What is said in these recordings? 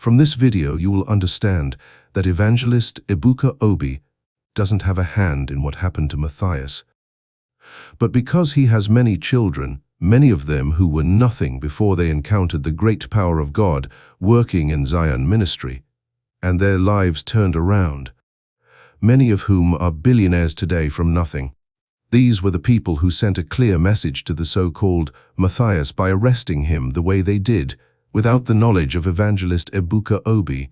From this video, you will understand that evangelist Ibuka Obi doesn't have a hand in what happened to Matthias. But because he has many children, many of them who were nothing before they encountered the great power of God working in Zion ministry, and their lives turned around, many of whom are billionaires today from nothing. These were the people who sent a clear message to the so-called Matthias by arresting him the way they did, without the knowledge of evangelist Ebuka Obi,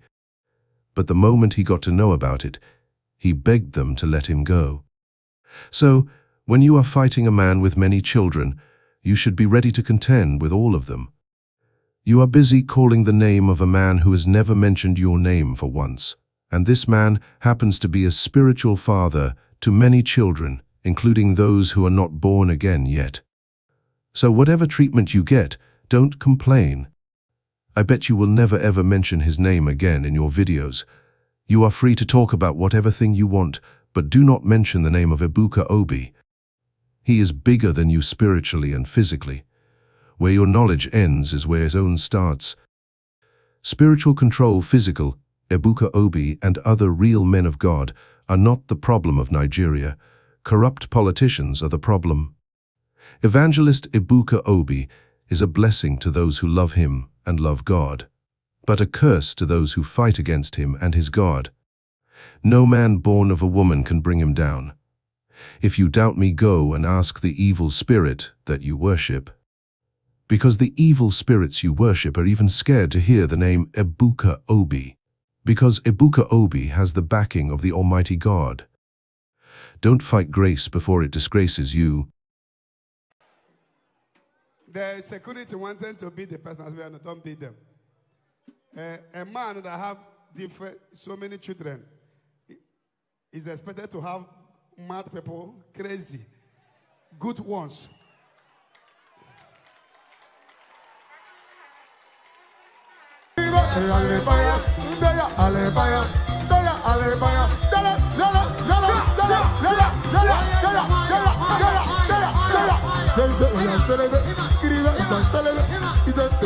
but the moment he got to know about it, he begged them to let him go. So, when you are fighting a man with many children, you should be ready to contend with all of them. You are busy calling the name of a man who has never mentioned your name for once, and this man happens to be a spiritual father to many children, including those who are not born again yet. So whatever treatment you get, don't complain. I bet you will never ever mention his name again in your videos. You are free to talk about whatever thing you want, but do not mention the name of Ibuka Obi. He is bigger than you spiritually and physically. Where your knowledge ends is where his own starts. Spiritual control, physical, Ebuka Obi and other real men of God are not the problem of Nigeria. Corrupt politicians are the problem. Evangelist Ebuka Obi is a blessing to those who love him and love God, but a curse to those who fight against him and his God. No man born of a woman can bring him down. If you doubt me, go and ask the evil spirit that you worship. Because the evil spirits you worship are even scared to hear the name Ebuka Obi, because Ebuka Obi has the backing of the Almighty God. Don't fight grace before it disgraces you, the security wanted to beat the person as well, and don't beat them. Uh, a man that have different, so many children is expected to have mad people, crazy, good ones.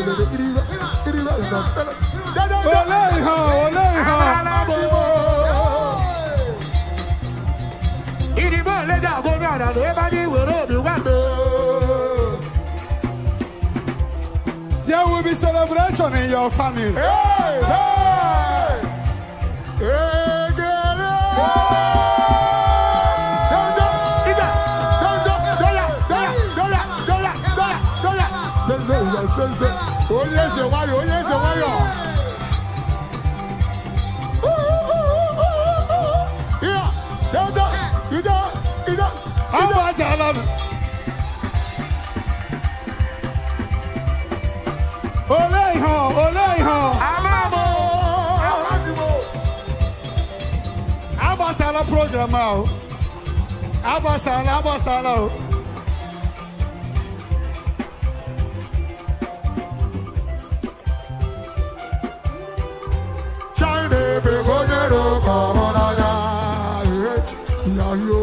olè ìhàn olè ìhàn. ìdìbò ìlẹ́jà gómìnà àdàlù ẹ bá ní ìwérò mi There will be celebration in your family. Hey, hey, hey, hey, hey. onye eze nwayọ program ahụ agbasala agbasala Hello.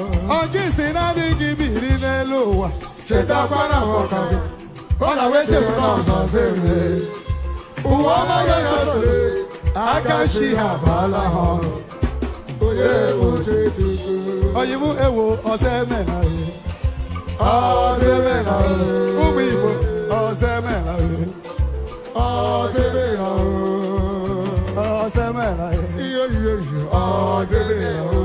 jinsi na dingi biri n'elu ụwa cheta kwana ọka gị ọ na wee chere na ọzọ zere ụwa ọmaghị esosore aka shi ha baala ha ọrụ onye oche tutu oyibo ewo ọzọ eme na ihe ọzọ eme na ihe ụmụ igbo ọzọ eme na ihe ọzọ eme na ihe ọzọ eme na ihe ihe ihe ọzọ eme na ihe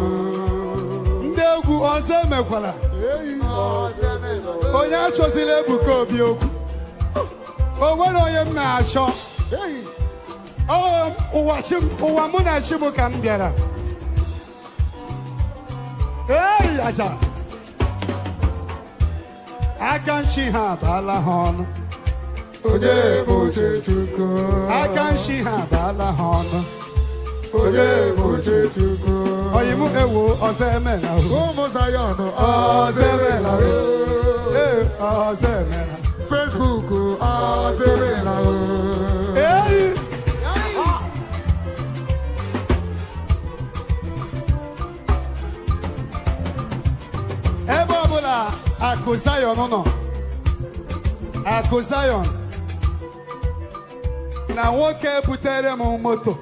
ọzọ emekwala onye achọzila Ebuka Obi okwu o nwere onye m na-achọ ụwa oh, mụ na chi m ka m bịara ei aja aka nchi ha abaala ha ọnụ aka nchi ha abaala ha ọnụ ọ̀yìnmú èwo ọ̀sẹ̀ mẹ́la o. kó musa yọ̀nù ọ̀sẹ̀ mẹ́la o. ọ̀sẹ̀ mẹ́la. Facebook ọ̀sẹ̀ mẹ́la o. ebe ọbụla akụ Zion nọ akụ Zion na nwoke butere m moto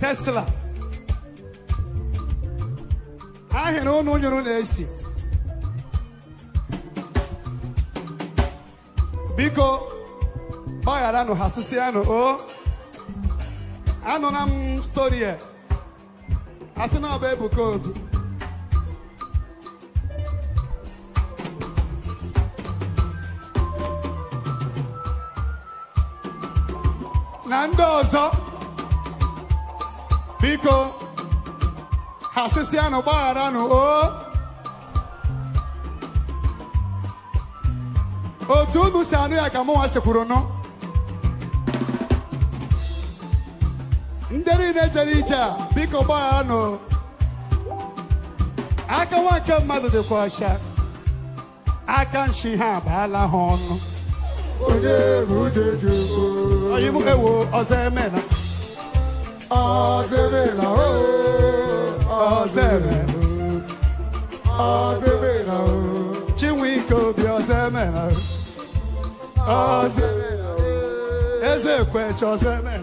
Tesla ahịrị ụnụ nyụrụ na-esi biko gbagharanụ ha sịsịanụ o anụla m stori a asị na ọba bụ Ebuka Obi na ndị ọzọ biko asịsị anụ gbaghara anụ o oh. otu unu si anụ ya ka mụnwa kwuru nụ ndị niile jere ije a biko gbaghara anụ aka nwa nke mmadụ dịkwa ọcha aka nshi ha abala ha ọnụ onye bụ ujeju onye m ewo ọzọ emela ọzọ emela ooo ọsẹmẹ ọsẹmẹ na o chinwike obi ọsẹmẹ na o ọsẹmẹ na o Ezekwechi ọsẹmẹ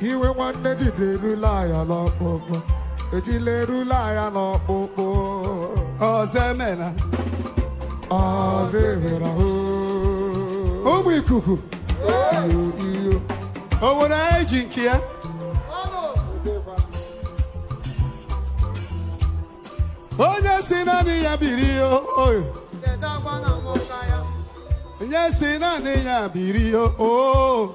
iwe nwanne na erule ya n'ọkpụkpụ ejila erula ya n'ọkpụkpụ ọzọ emena ọzọ emera ụmụ ikuku iyo o nwere anyị ji nke ya onye si naanị ya biri oyo onye si naanị ya biri oyo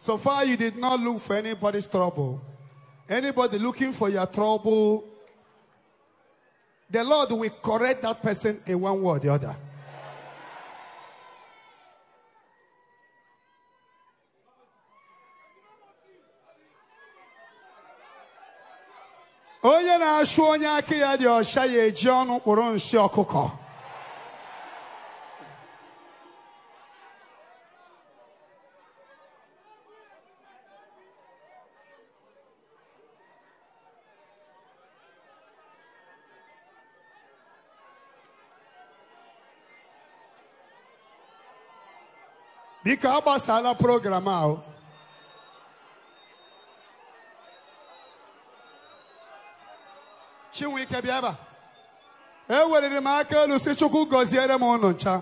So far, you did not look for anybody's trouble. Anybody looking for your trouble, the Lord will correct that person in one way or the other. onye na-achụ onye aka ya dị ọcha ya eji ọnụ kpụrụ nsị ọkụkọ biko agbasala program ahụ chinwike bịa ebe eweliri m aka elu si chukwu gọziere m ụnụ ncha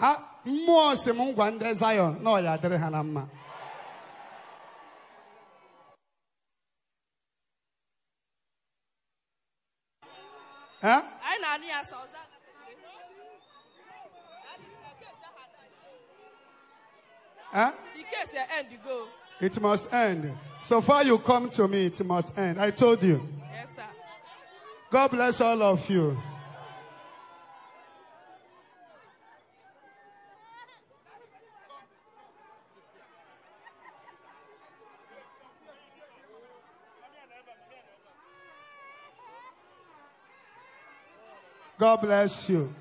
ha mmụọ si m ngwa ndị Zion na ọya dịrị ha na mma na Huh? The case will end, you go. It must end. So far you come to me, it must end. I told you. Yes, sir. God bless all of you. God bless you.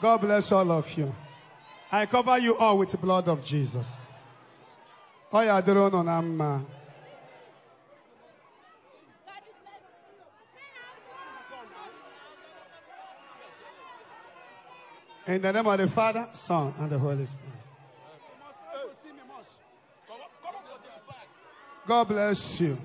God bless all of you. I cover you all with the blood of Jesus. Oh, yeah, the In the name of the Father, Son, and the Holy Spirit. God bless you.